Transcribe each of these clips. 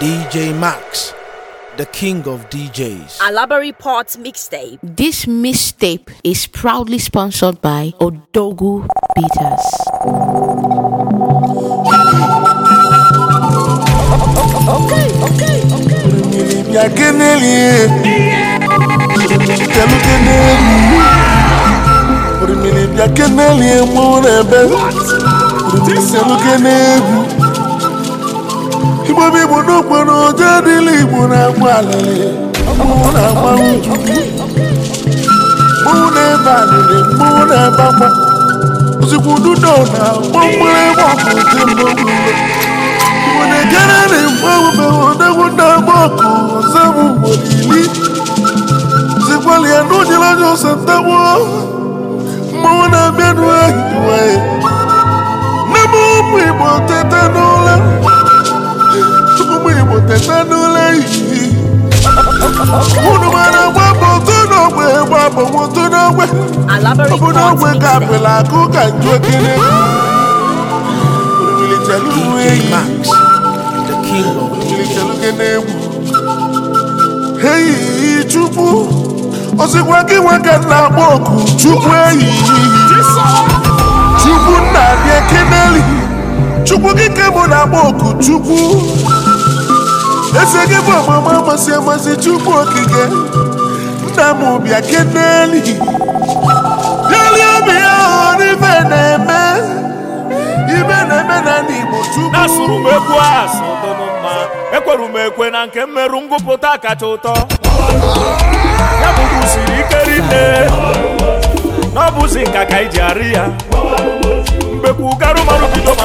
DJ Max, the king of DJs. Alabari Port Mixtape. This mixtape is proudly sponsored by Odogu Beaters. Okay, okay, okay. igbobi igbo n'okporo oje dịla igbo na-agba alịlị mmanwụ na-agba uju na-ebe alịlị mmanwụ na-ebe agba ozugbo na gbọmgbere egbe ọkụ dị mmanwụ igbo na-ejere na igbo odegwu na agba ọkụ ọzọ bụ ugboro iri zikwali ya na anya ọsọ na-abịa na ụmụ igbo teta n'ụlọ oteta n'ụlọ ehihie unu mara gbapụ otu n'ogbe gbapụ otu n'ogbe ọbụ n'ogbe ka apịla akụ ka njokere orilitere ihu eyi chukwu osikwa gị nwoke ke na agba oku chukwu eze gị bụ ọmụma amasị amasị chukwu okike nna m bịa keneli bịalie obi ya ibe na-eme ibe na-eme na ndị Igbo chukwu asụrụ m egwu asụ dụnụ mma ekwere m ekwe na nke mmerụ ngụpụta kacha ụtọ ya bụrụ usiri ike rinne n'ọbụzi nka ka iji arị ya mgbekwu garụ marụ bido ma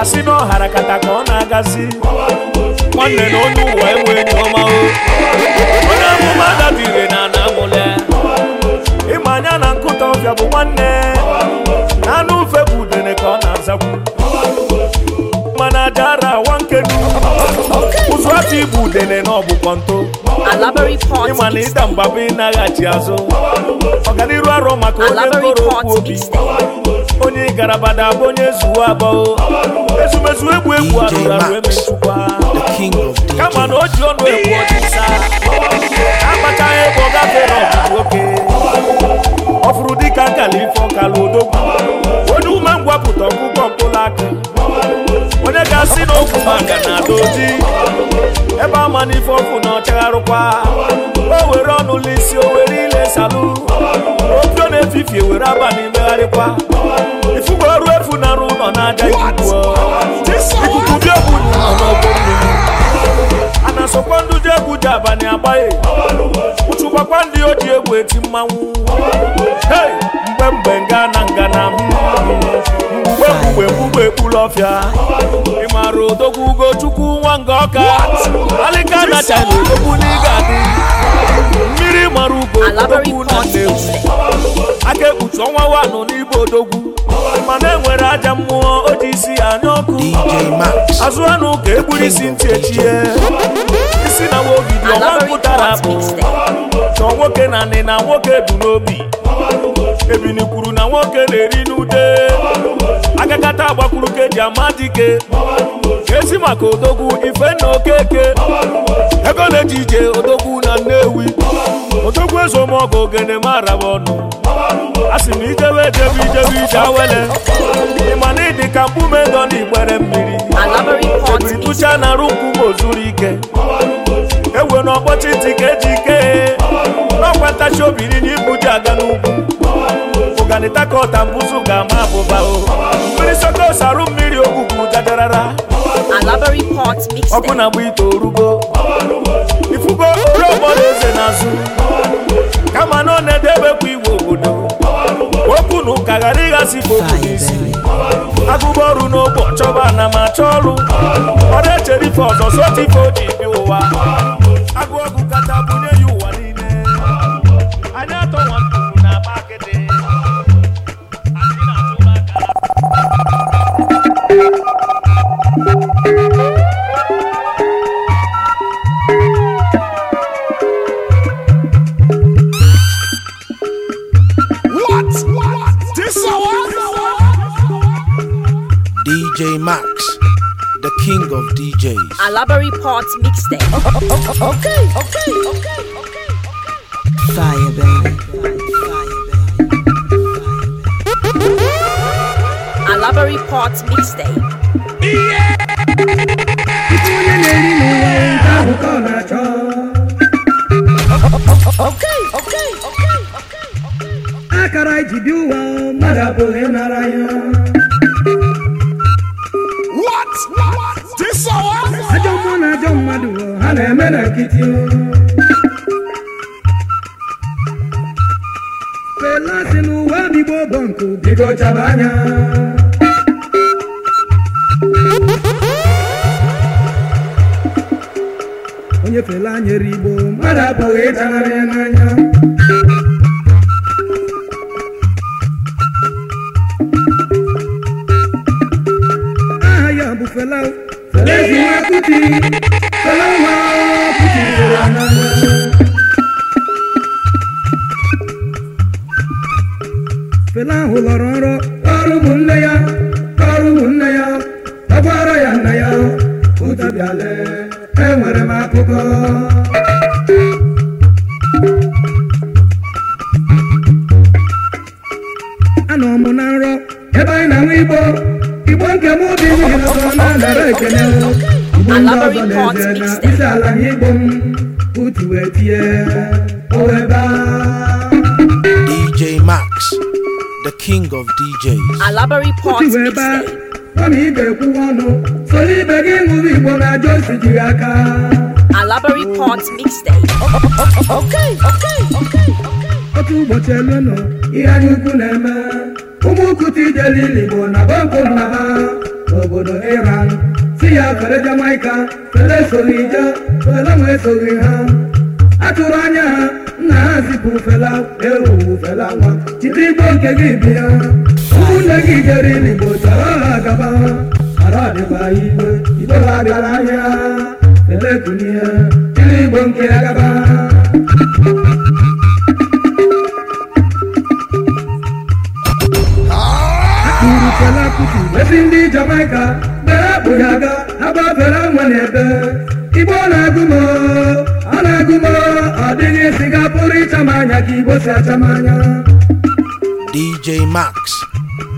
asị na ọhara kata ka ọ na-agazi nwanne na onye ụwa enwe enyi ọma o onye amụma dabire na ana amụle ịma anya na nkụta ọbịa bụ nwanne na anụ ufe bụ udene ka ọ na-azakwu mana adara awa nkenu ụzụ ati bụ udene na ọbụkwa nto ịma na ịda mgbaba ịnaghachi azụ ọganiru arọ maka onye mkpọrọ okwu obi onye garabada bụ onye zuwa abụọ ezumezu egwu egwu arụrụ arụ emetụkwa kama na o ji ọnụ egwu ọchịsa agbachaghị ebe ọ gafere ọgụgụ oke ọ fụrụ dịka nkala ife ọkala odogwu onye ume ngwapụta ọgụgọ mkpụrụ aka onye ga-asị n'okwu maka na doji ebe ama n'ife ọkụ na ọchagharụkwa o were ọnụ lisi o were na-esalụ otu na-efifie were abalị megharịkwa ọrụ efu na arụ ụlọ na-aja ikuku dị egwu n'ọgbọ mmiri a na-asọkwa ndị ji ndị o ji egwu eti mmanwụ mgbe mgbe nga na nga na mgbe mgbe mgbe ekpuru ọfịa ị maara odogwu na n'ịga adị A ugbo odogwu na na aka ekpuchi ọnwa wanụ n'igbo odogwu mana enwere aja mmụọ o ji isi anya ọkụ azụ anụ ka egburu isi ntị echie isi na wogidi ọnwa pụtara bụ chọọ nwoke na nị na nwoke bụ n'obi ebini kwuru na nwoke na-eri n'ude agakata agbakwuru ama amadike esi maka odogwu ife na okeke ego na-eji ije odogwu na nnewi odogwu ezomọgụ ogene mara m ọnụ a sị m ijewe ejebe ije awele ịma na ịdị ka mkpume nọ n'igbere mmiri ebiri tụcha na arụ nkume ike ewe na ọkpọchi ntị ka ike n'ọkwa ntachi obiri n'ibu ji aga n'ugwu Ogbani Tako ga-ama abụba o mmiri soko sarụ mmiri ogwugwu jajarara ọkụ na-agba ite orugo ifugo oriọgbọ na eze n'azụ kama na ọ na-edebekwa iwu obodo okwu na ụka ghara ịghasị ife n'isi agụba ọrụ n'ogbo chọba ana m achọ ọrụ ọ na-echere ife ọzọ sotu ife o ji bi ụwa king of DJs. Alabari Parts Mixtape. Oh oh, oh, oh, oh, okay, okay, okay, okay. Fire, baby. Alabari Parts Mixtape. Yeah! Okay, okay, okay, okay. na-eme na nkịtị Fela si n'ụwa bigbo bụ nkụ bigo chaba anya onye Fela nyere Igbo mmadụ apụghị ịtanarị ya n'anya Barbary Port Mixtape. Alabary Port Mixtape. Oh, okay, okay, okay, okay. Otu ụbọchị elu nọ, ihe anyị na-eme. Ụmụ ukwu ijele bụ na ha n'obodo Iran. Si ya ha. A tụrụ anya ha, nna ha zipụ fela, fela nwa. nke gị bịa. ise gị jere irigbo chọrọ agaba ara ọdịkwa igwe igwe bagara ahịa elekunie igbo nke agaba Fela Kuti esi ndị Jamaica bere akpụghị aga agbafere nwe na-ebe Igbo na-agụmo ọ na-agụmo ọ dịghị siga pụrụ ịchama ka Igbo si achamanya. DJ Max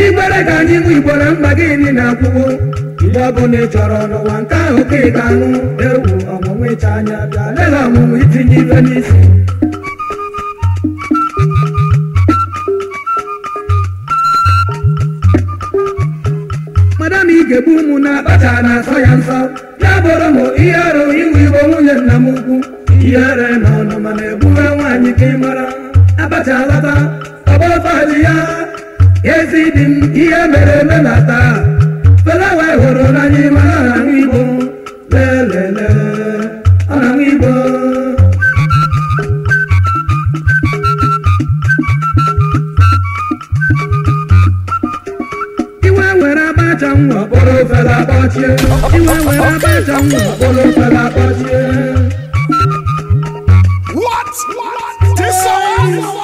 igbere ka anyị bụ igboro mkpa gịnị na-akwụgo mgbe ọbụla ị chọrọ n'ụwa nke ahụ ka ị ga-anụ ewu ọmụmụ ịcha anya bịa lela ọmụmụ itinye ibe n'isi madam ị ga ụmụ na-akpacha na-asọ ya nsọ ya bụrụ m ihe arụ iwu igbo nwunye nna m ukwu ihe ere na ọnụ mana egbula nwaanyị ka ị mara abacha alata ọgba ọtọ ya ezi dị m ihe mere eme na taa felawa hụrụ n'anya ịma na igbo lelele ọ iwe were abacha nwa kpọrọ ofela kpọchie iwe abacha nwa kpọrọ kpọchie What? What? This song?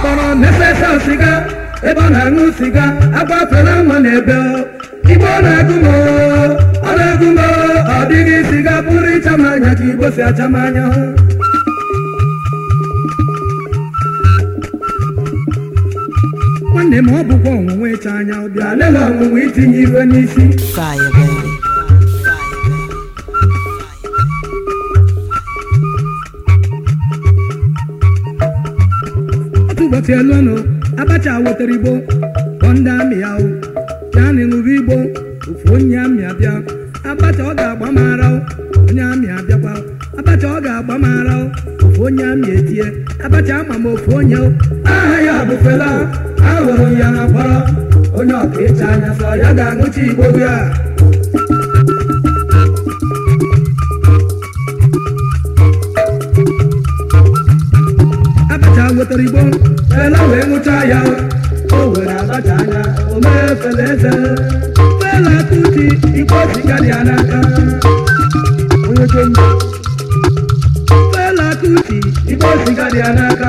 kpọrọ mefesa siga ebe ọ na-aṅụ siga agbafela nwa n'ebe ọ na-agụ m ọ na-agụ m ọ dịghị siga pụrụ ịcha m anya ka igbo si acha m anya nwanne m ọ bụkwa ọnwụnwa ịcha anya ọbịa lela ọnwụnwa itinye iwe n'isi elu mgbatielunu abacha wetara igbo kpọ ndị amị ya ya na ịṅụba igbo ofu onye amị abịa abacha ọ ga-agba mara onye amị abịakwa abacha ọ ga-agba mara ofu onye amị etie abacha ama m ofu onye aha ya bụ Fela ahụrụ ya na onye ọka ịcha anya sọ ya ga-aṅụchi igbo ya wetara igbo fela wee nwụcha ya o were abacha anya o mee fela eze fela kuti igbo ya fela ya n'aka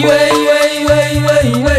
iwe iwe iwe iwe iwe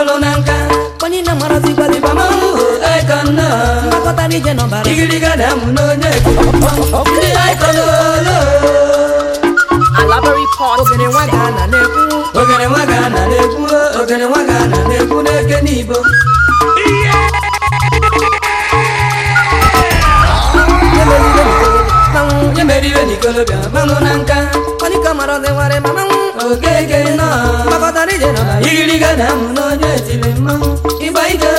bụlụ na nka onye na-amarazị ma ije n'ọbara igiriga na mụ n'onye ndị aikọnọlo nwa ga na-ekwu ogene nwa ga na-ekwu n'eke onye merire n'ikolobịa manụ na nka ọdịka mara ọdịwarị ma manwụ okeke nọ gbakọtara ije nọ na igiriga na amụ na onye etiri mmanwụ ịgba ike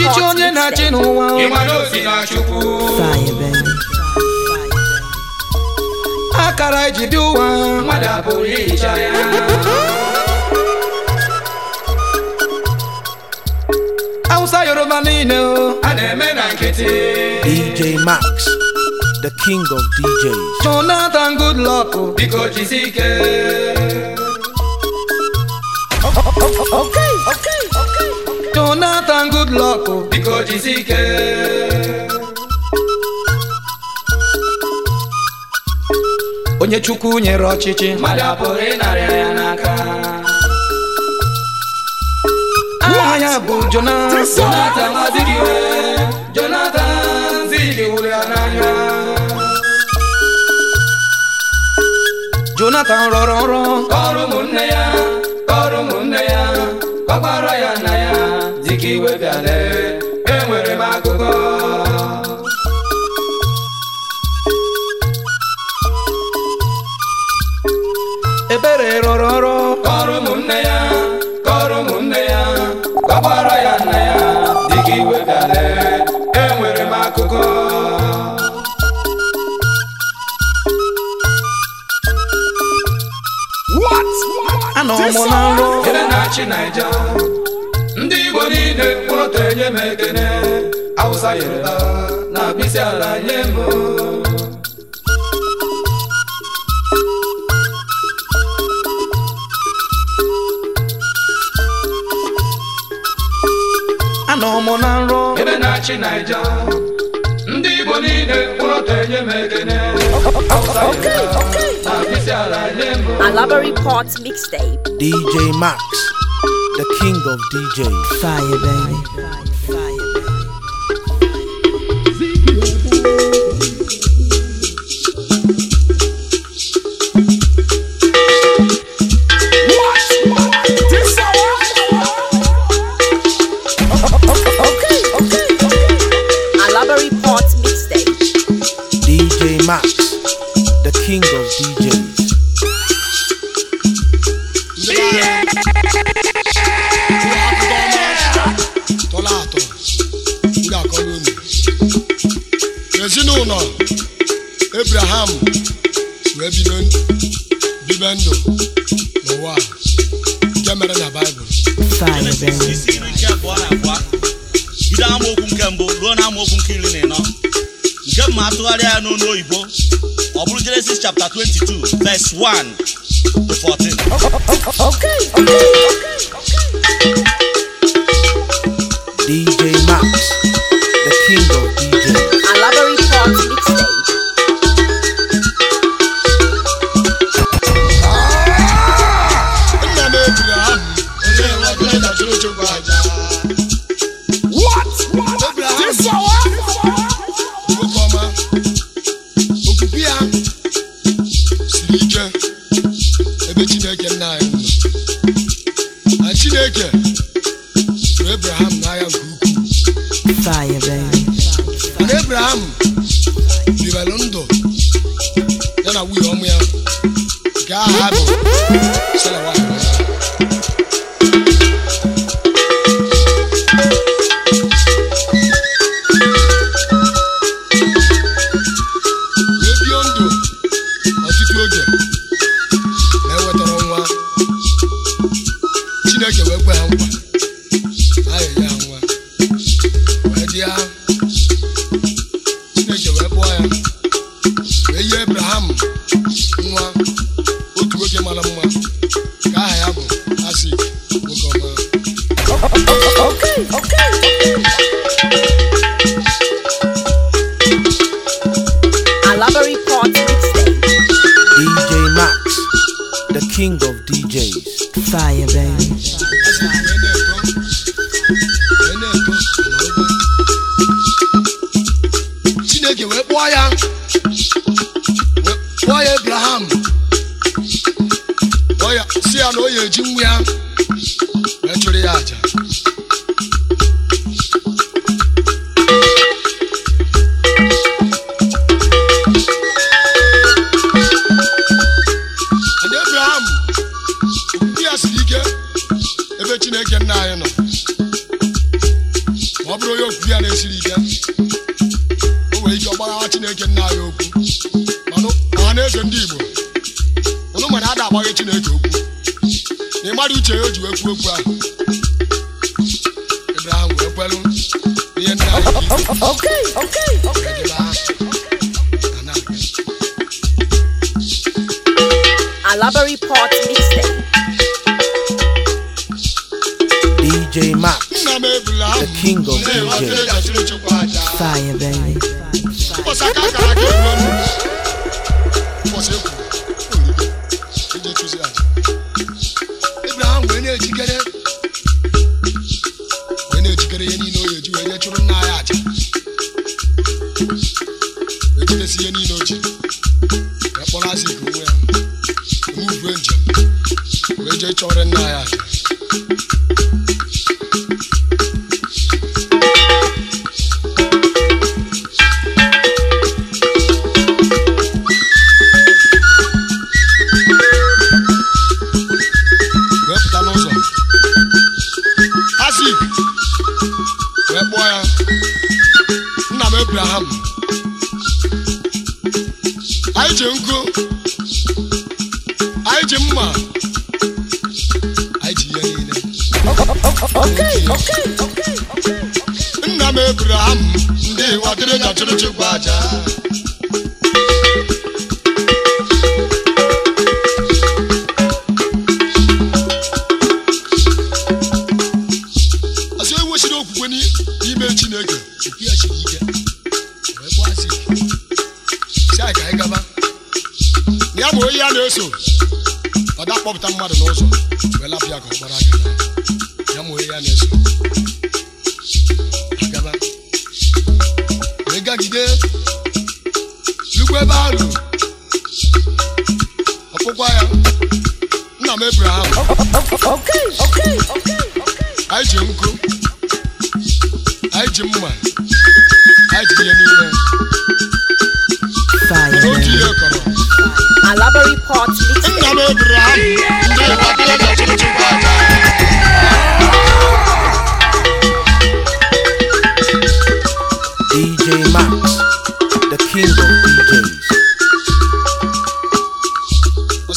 ọchịchị onye na-achị n'ụwa akara iji dị ụwa Awụsa Yoruba niile o! eme DJ Max the king of DJs Jonathan Goodluck biko jisi good luck biko jizike onye chukwu nyere ọchịchị mmadụ apụrụ ịnarịa ya n'aka Nwa ya bụ Jonathan Jonathan Azikiwe Jonathan ziliwụrụ ya n'anya Jonathan rọrọ nrọ kọrọ ụmụnne ya kọrọ ụmụnne ya ya lee enwere m akụkọ ebere rọrọ ọrụ kọrọ ụmụnne ya kọrọ ụmụnne ya kọkwara ya nna ya dịka iwe bịa lee enwere m akụkọ anọ m na nrọ ebe na-achị Naịja niile mkpụrụ enye m ekene awụsa yoruba na abịsị ala nye m anọ m na nrọ ebe na-achị naija ndị igbo niile mkpụrụ enye m ekene awụsa yoruba na abịsị ala nye m Alabari Pot Mixtape DJ Max the king of DJs. Fire, baby. S1 14. Abraham bibelu ndụ ya na nwunye ọmụ ya nke aha ha bụ Sara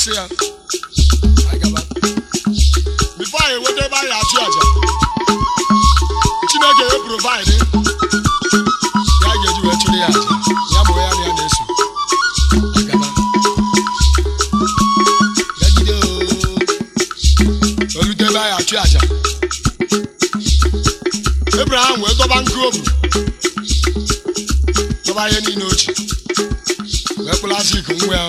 na enweta ebe anyị achụ aja chineke ya provaịdị ga ya bụ achụ aja ebraham wee dọba ihe niile ya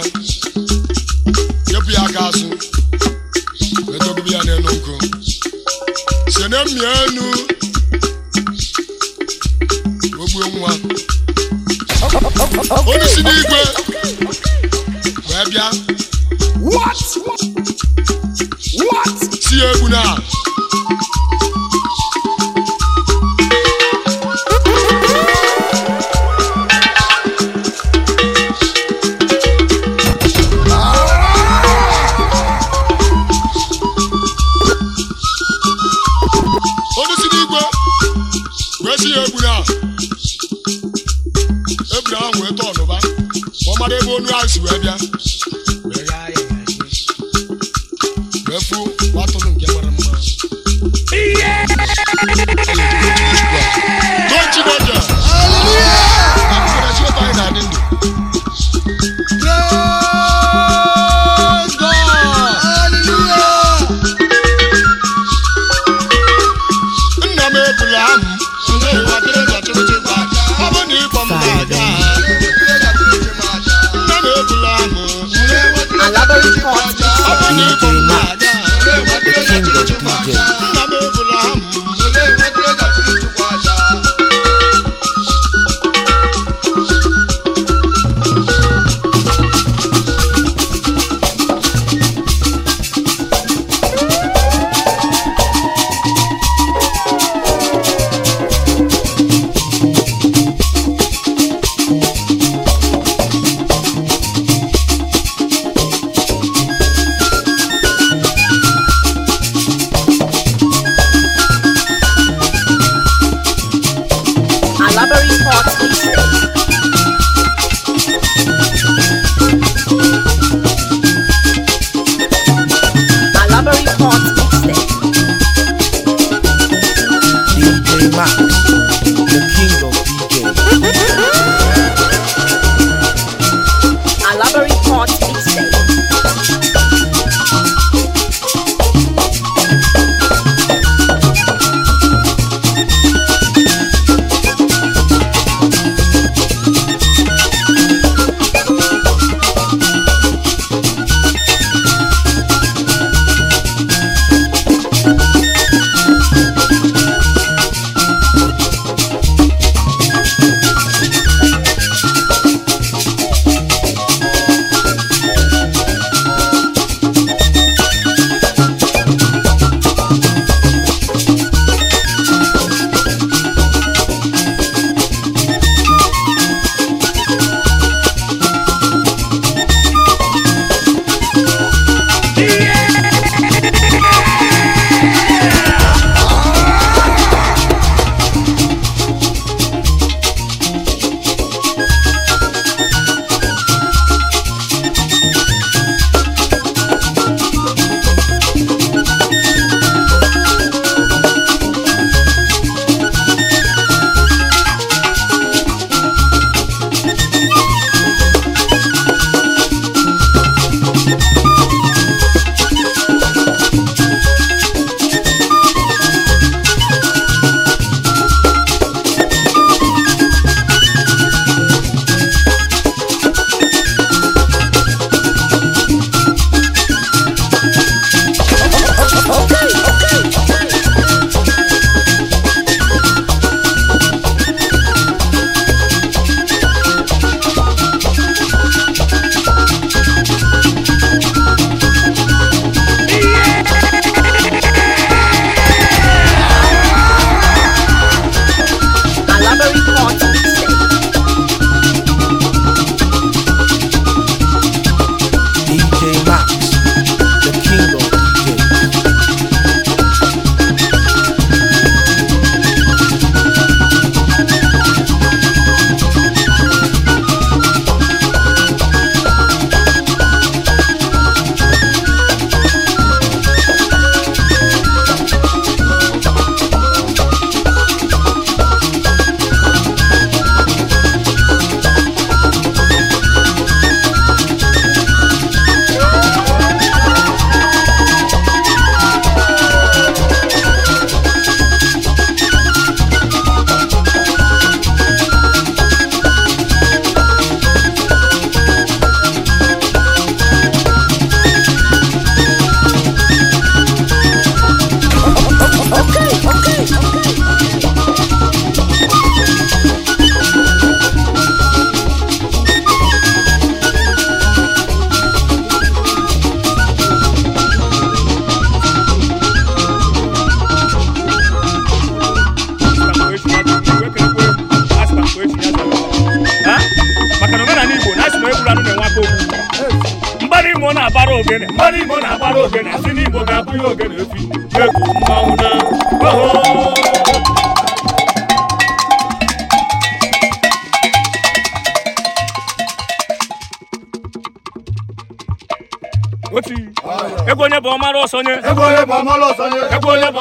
ọmara ọsọnye ego ole bụ ọmara ọsọnye ego ole bụ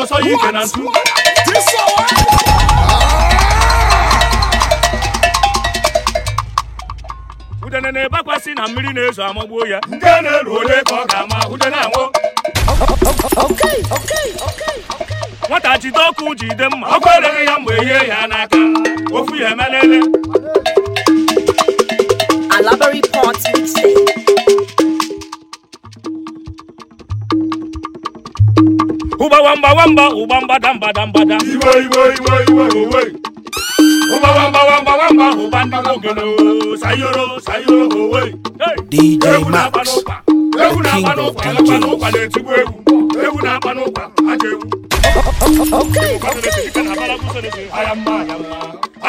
ọsọ ya ike na ntụ ah! udene na-ebakwasị na mmiri na-ezo amagbuo ya nke na-eru ole ka ọ ga-ama udene anwụ nwata jide ọkụ jide mma ọkụ ereghị ya mgbe ihe ya n'aka ofu ya emelele Alabari wamba wamba ụgba mbada mbada iwe iwe iwe iwe owe ụgba wamba wamba wamba na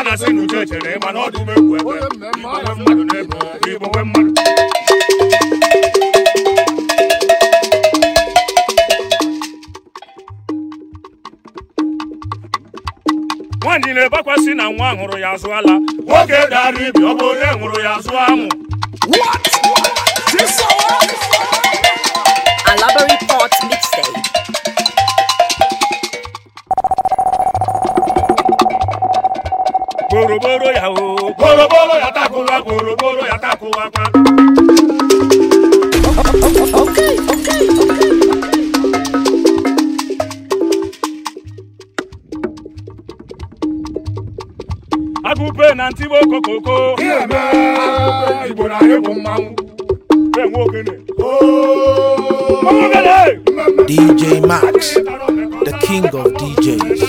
na asị na nwaanyị na-ebekwasị na nwa hụrụ ya azụ ala nwoke dara ibi ọ bụ onye hụrụ ya azụ amụ gboroboro ya o gboroboro ya takụwa gboroboro ya takụwa kwa ibe na ntị igbo kokoko igbo na anyị bụ mmanwụ oh, DJ Max, the king of DJs.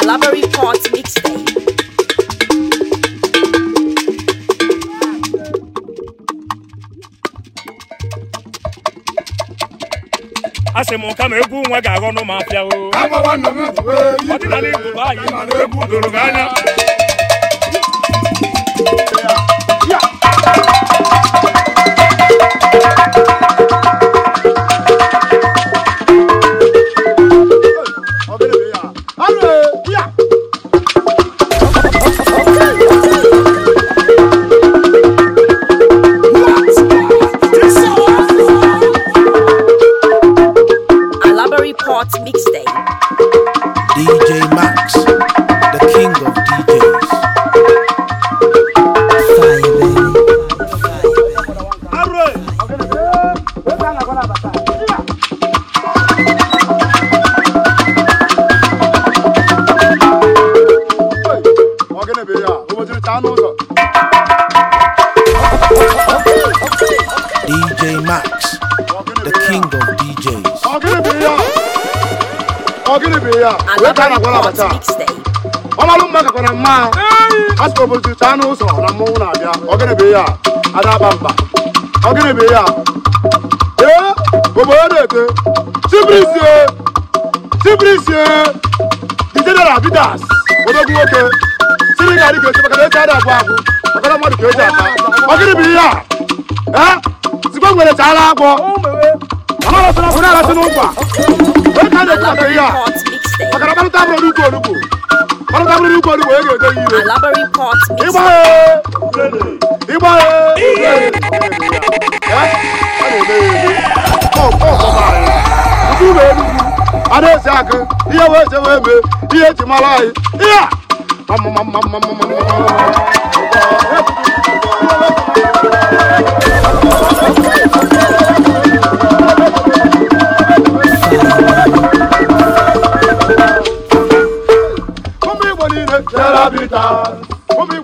Alabari Court Mixtape. a sị m ma egwu nwa ga-aghọ nụ ma apịa o eh, ọdịnala Igbo bụ anyị egwu doro gị anya Ndị nkuzi ya ọmalụ mma gakwara mma asụpụta anụ ụzọ na mmọnwụ na-abịa ọgịnịbe ya adaba mba ọgịnịbe ya ee obodo na-ete tibrisie tibrisie dijedara odogwu nwoke siri ga adị ka maka na esi ada abụ makana mmadụ ka eji ọgịnịbe ee nwere agwọ ọ na-arasị n'ụkwa wee ka a na-ekwu maka ihe a maka na gbarụta abụrụ n'ukwu onugbu gbarụta abụrụ n'ukwu onugbu onye ga-ede ya ire ịgbaghe ịgbaghe ada esi akụ ihe wee je wee mee ihe eji mara anyị ihe a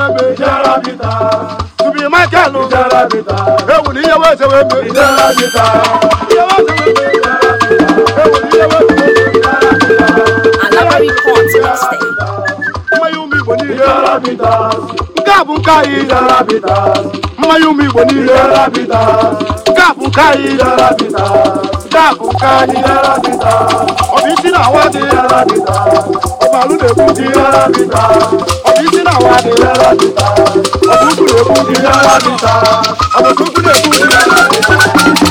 wee mee Michael na ihe weze wee mmanya ụmụ Igbo niile nke a bụ nke anyị mmanya ụmụ Igbo nke a bụ nke anyị a bụ ọ bụ isi na awa dị ọbalụ na-ekwu dị ọ bụ ndị na awa dị ọ bụ ukwu na-ekwu ndị na awa ndị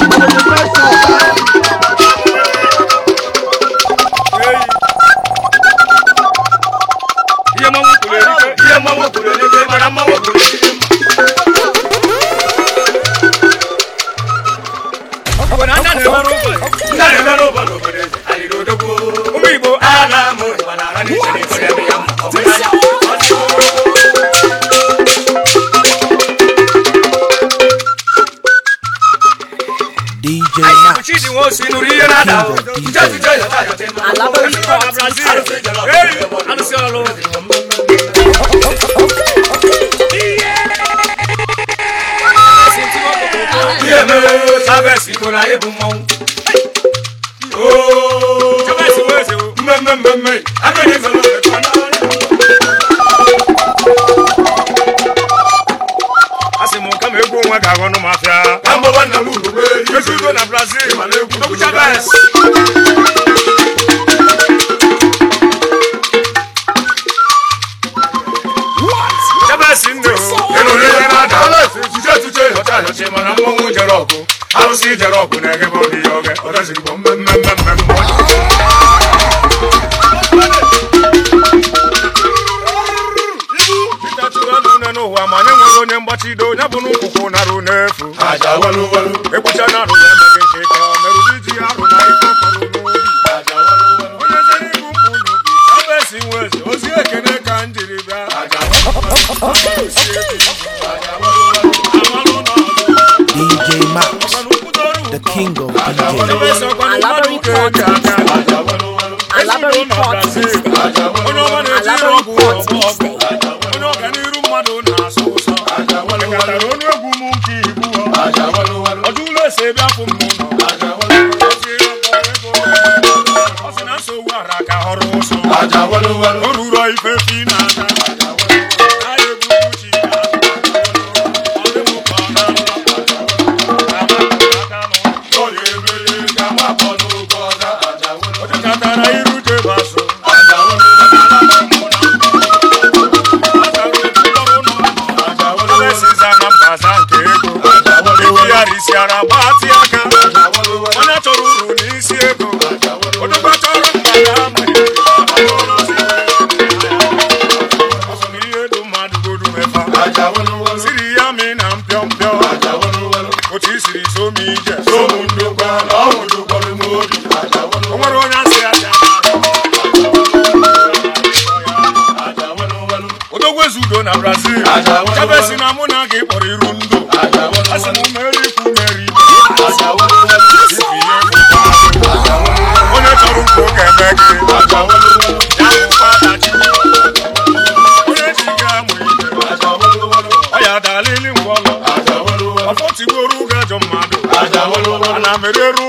ó sinú rí yẹn náà jẹ́jìjẹ́ yẹn náà yọ̀tẹ́ náà. alábẹ́ ní kọ́ àbúrásí rẹ̀ ẹ̀yìn alùsí ọ̀rọ̀. bí èmi sábẹ́ sí kò láyé ijere ọgụ na-eghe m obi oge mere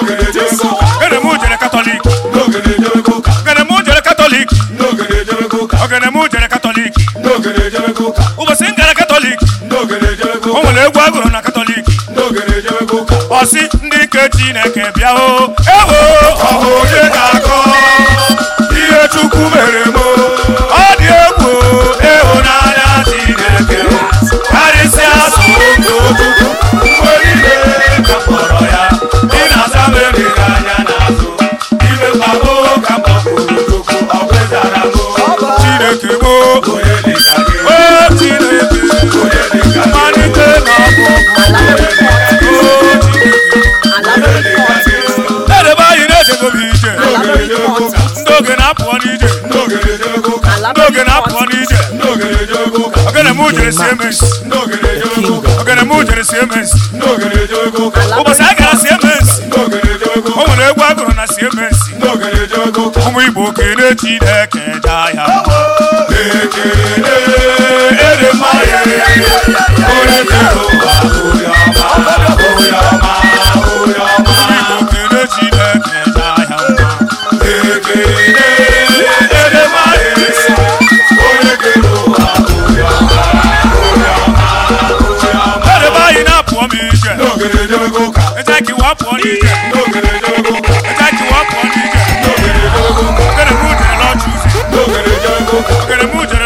Igbo gụrụ na katọlik ọsị ndị nke Chineke bịa o ewo ọhụ onye na-akọ ihe Chukwu mere mụ mujere sie mes ogene mujere sie mes ụbọchị a gara sie mes o nwere egwu agụrụ na sie mes ụmụ igbo kere na jaa ya ekele ere mmanya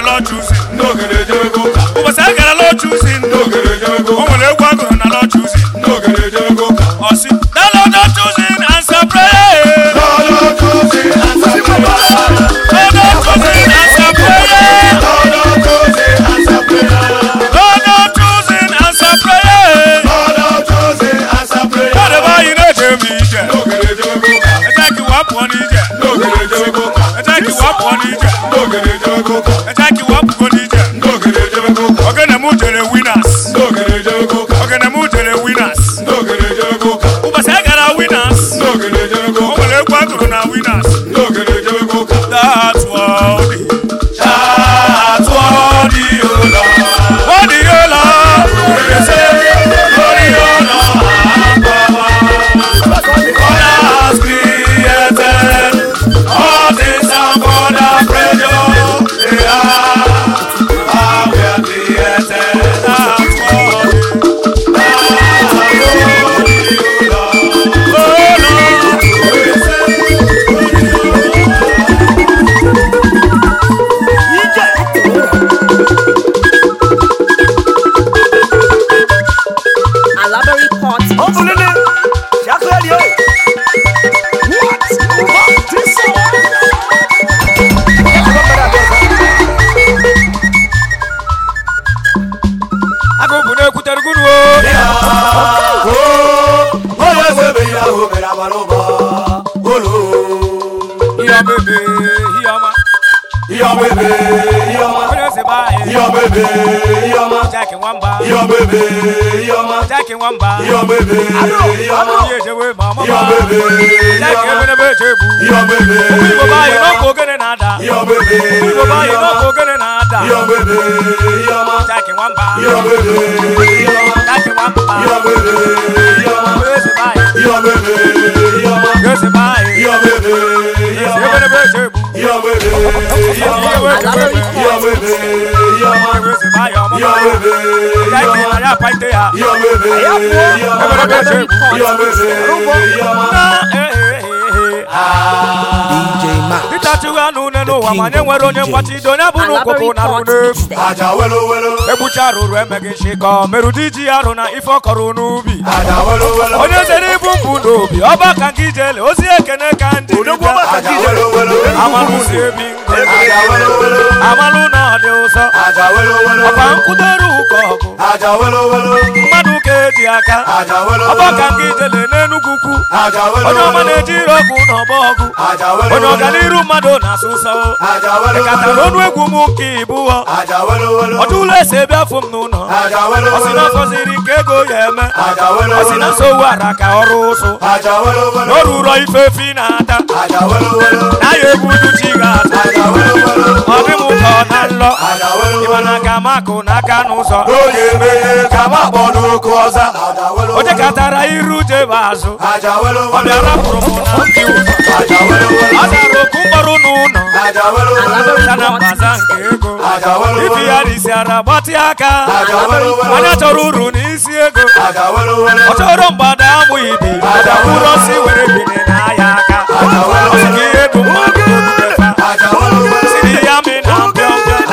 not choosing. No, get it, go. we winners. making one by your baby, your baby, mama, your baby, like you're a virtue, your baby, we will buy you no poker and ada, your baby, we will buy you no poker and ada, your baby, your mom, taking one by your baby, your mom, taking one by your baby, your your baby, your your baby, your baby, your baby, your baby, your baby, your your baby. ya apaite ya. Ya bebe, ya bebe, ya ya bebe, ya bebe. ịtachiwa anụ n'ụwa ma nye nwere onye mgbachido onye bụ n'ụkwụkwụ na arụ n'efu egbucha arụrụ emeghị nshịkọ merụ diji arụ na ife ọ n'ubi onye zere ibu mbụ n'obi ọba ka gị jele ozi ekene ka ndị amalụsi amalụ na ọ dị ụzọ ọkwa nkwudoru ụka ọgụ mmadụ aka eji aka ọgbaka nke ijele n'enugwu ukwu onye ọma na-eji ire ọgwụ na ọgba ọgwụ onye ọganiru mmadụ na-asụ ụsọ ịkatara ọnụ egwu m ka ịbụọ ọdụ ụlọ esi ebe afọ m n'ụlọ ọsị na afọziri nke ego ya eme na nso ara ka ọrụ ụsụ na o na-ata na ya egwu uduchi ga-ata n'ụzọ na nlọ ịmana ka makụ n'aka n'ụzọ ka makpọ n'oke ọza onye katara iru jebe azụ ọ bịara pụrụ m na ndị ụzọ ọ dara oku mkpọrọ n'ụlọ sana mbaza nke ego ibi ya risi ara gbatị aka onye chọrọ uru n'isi ego ọ chọrọ mgbada amụ ibi ụrọsi were bine n'ahịa aka ọ sị ka ihe bụ mmadụ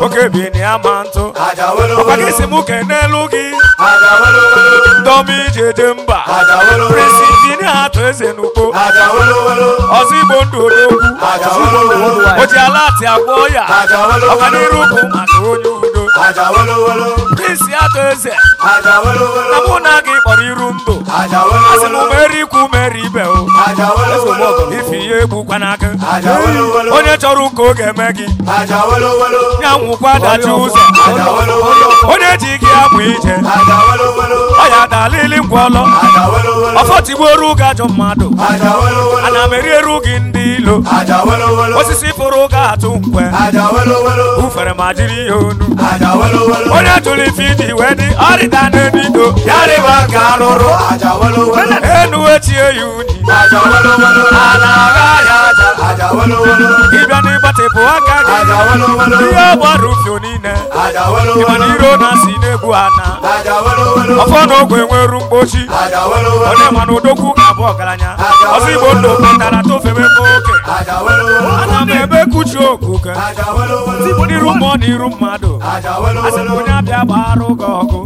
oke bi ama ya ntụ ọkwa gị si m n'elu gị ndọmi iji eje mba presi injinia atụ eze n'ugbo ọzọ igbo ndụ odogwu o ji ala ati agwọ ya ọganiru bụ maka onye udo presi atụ eze na mụ na gị kpọrọ iru ndụ asị m merikwu meri ibe o ife ihe egbukwana onye chọrọ ụka oge eme gị ya nwụkwa dachi ụzọ onye ji gị abụ ije ọya dalili ngwọlọ ọfọtigbuoru gị mmadụ ana m erieru gị ndị ilo osisi fụrụ ga atụ nkwe ufere ma jiri ya onu onye jụrụ ife iji wee dị ọrịda n'edido ya unyi ala agha ya aka gị ihe ọ gbara ufio niile ịmana iro na si n'egwu ana ọfọ na ogwe nweru mgbochi onye mana odogwu ga-abụ ọgaranya ọzọ bụ oke ana m ebe kuchi okuke tibu n'iru mmụọ na iru mmadụ asị na onye abịa gbara ụgọ ọgụ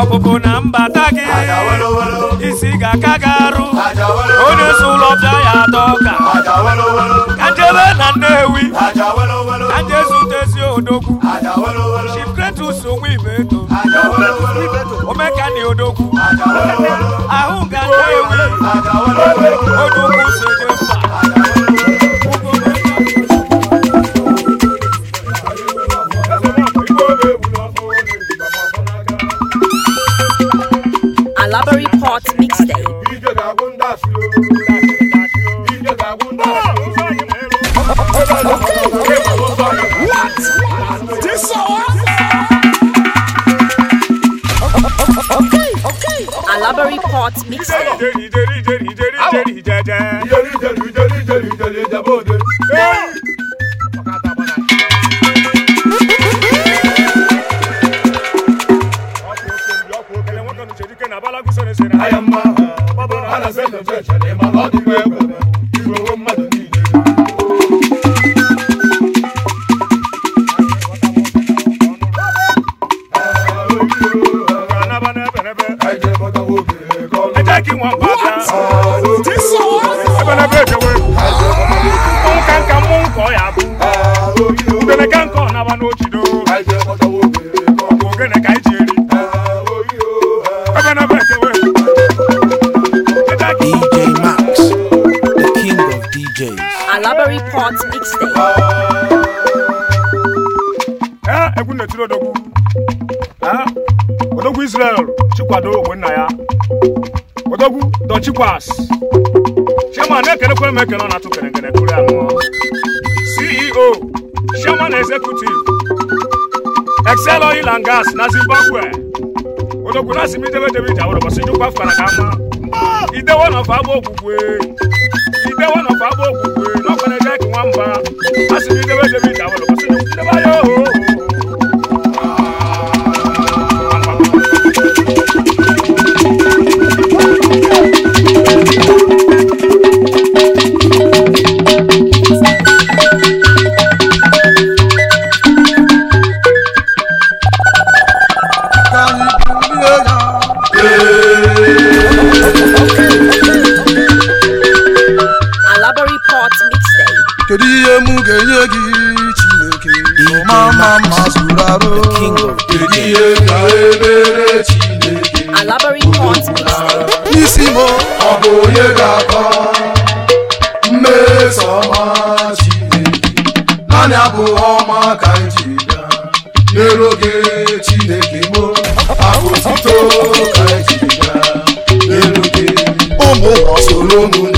ọpụpụ na mbata gị isi ga-aka gị arụ onye isi ụlọ bịa ya atọ ọka ka njebe na Nnewi ka njezute ezi odogwu Chief Kretus onwe ibe eto omekani odogwu ahụ ga Nnewi odogwu so ije ije Alabari pot mixer. Well, kwadoro ogwe nna ya odogwu dochikwas chairman ekelekwere m ekele ọ na-atụ kerengere tụrụ ya ṅụọ ceo chairman executive excel oil and na zimbabwe odogwu na asị m idebedebe iji awụrụ bọsị jụkwa fụkara ka ama idewo na ọfa agba okwukwe idewo na ọfa agba okwukwe n'ọkwana eke nwa mba asị m idebedebe iji awụrụ ihe m ga-enye gị chineke mama ma zuru arụ kedu ihe ka ebere chineke n'isi m ọ bụ onye ga-akọ mmeso ọma chineke naanị abụ ọma ka ji bịa nyere oge chineke m akụ otito ka ji bịa nyere oge ụmụ soro ụmụnne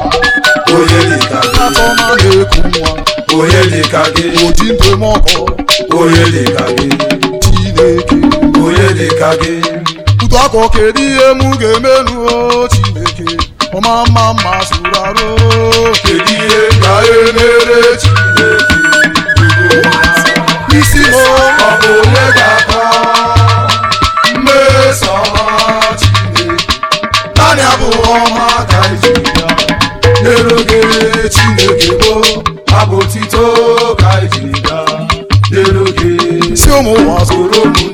onye dị ka gị oji ntụm ọkụ onye ka gị chineke onye dị ka gị utu akọ kedu ihe m ga-emenu chineke ọma mma mma sụrụ arụ kedu ihe ga-emere chineke isi m ọ bụ onye ga-ata mmeso ọma chineke naanị abụọ ọma ka iji ya nyere oge chineke bụ. bụ otito ka gaa n'elu gị si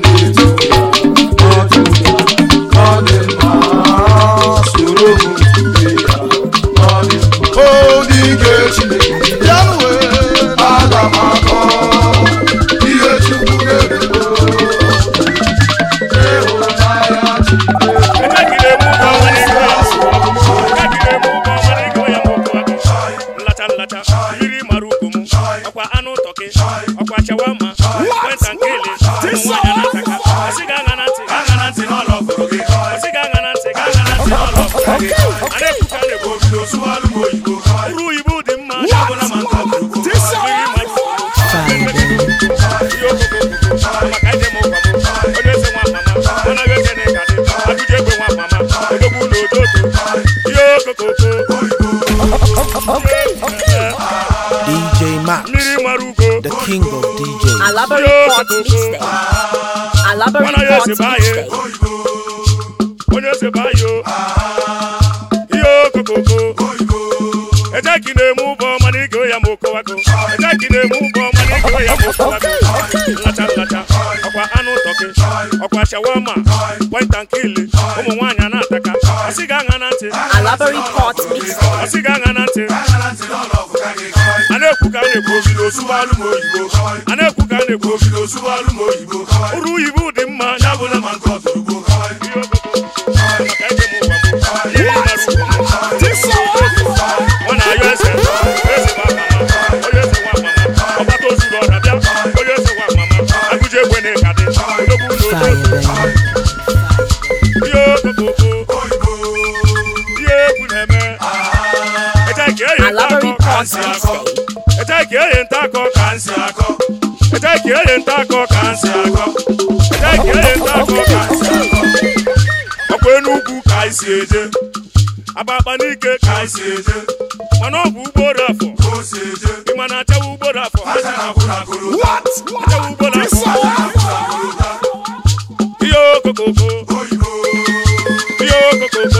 na-ekwu a na-ekwu ka a na-ekwu uru oyibo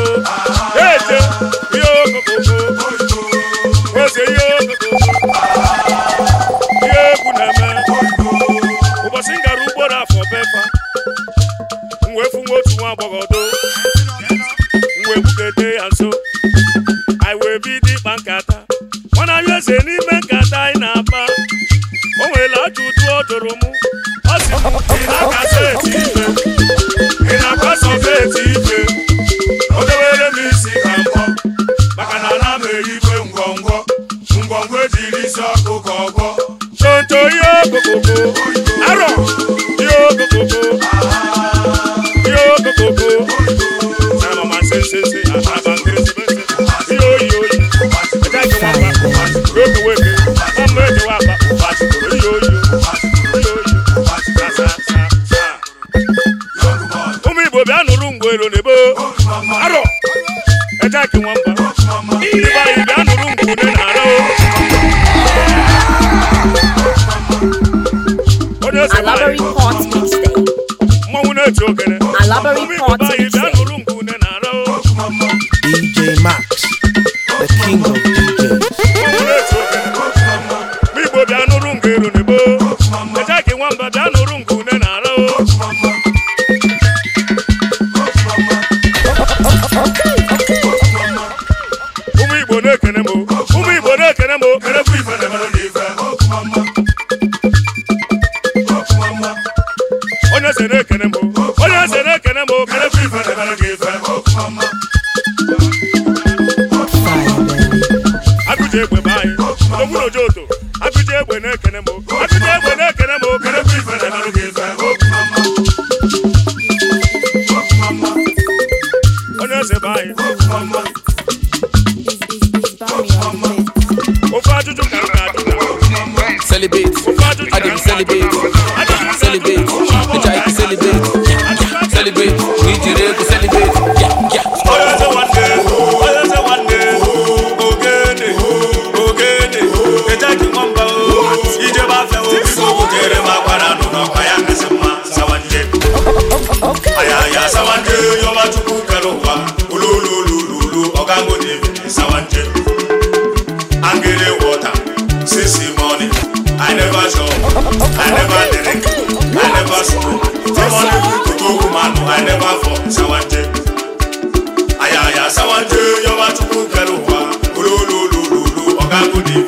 e celebrate, celebrate, bitch I can celebrate, celebrate, we ya sawande yo matukuka lowa I never did it. I never spoke. Someone to go woman, I never for Sawanje. Ayaya Sawanje, Yoma Chukwu Keruwa, Ululululu,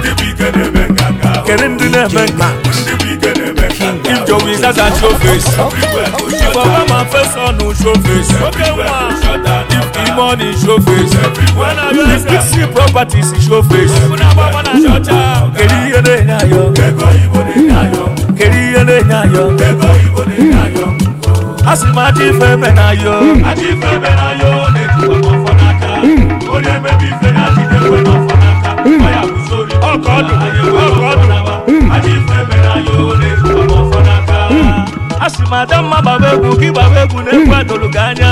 kedu ndị na-eme nka ijowi zaza showface ifọba ma fesa a, showface oke nwa ime ọnụ showface isi properties showface kedu ihe na-enye ayọ kedu ihe na-enye ayọ asị m ife eme na ayọ ife eme na ayọ na-etukwa n'ọfọ n'aka onye ife na adị ife n'ọfọ n'aka ọkọọdụ a sị m ada mma gbaba egwu gị gbaba egwu na-egwu adụrụ gị anya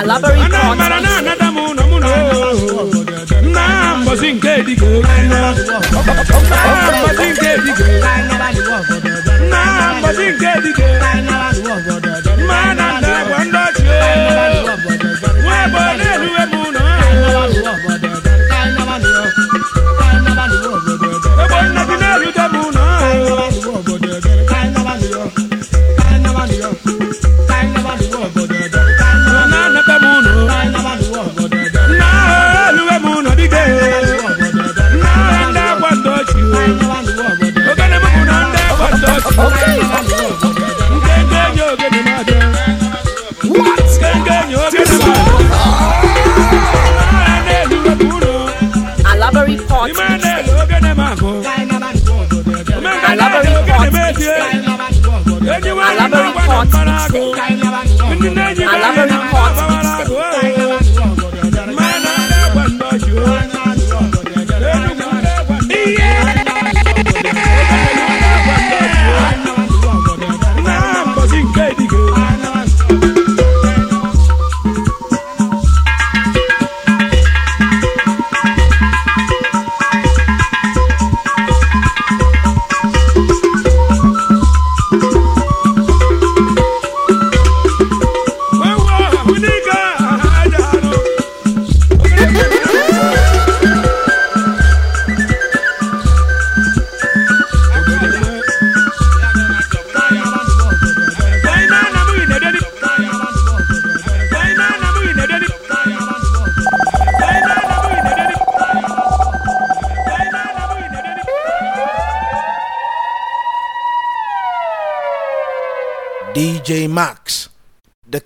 na-amala alabari kọtị. nke dike na mbosi nke dike alabamu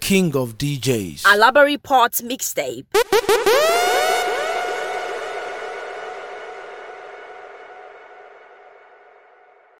king of DJs. A library mixtape.